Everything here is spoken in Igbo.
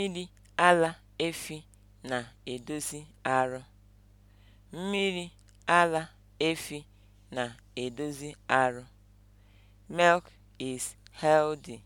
Mmiri ara efi na-edozi arụ. Mmiri ara efi na-edozi arụ. Milk is healthy.